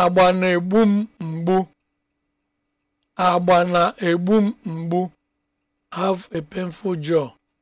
agba na-egbu m mgbu agba na-egbu m mgbu have a painful jaw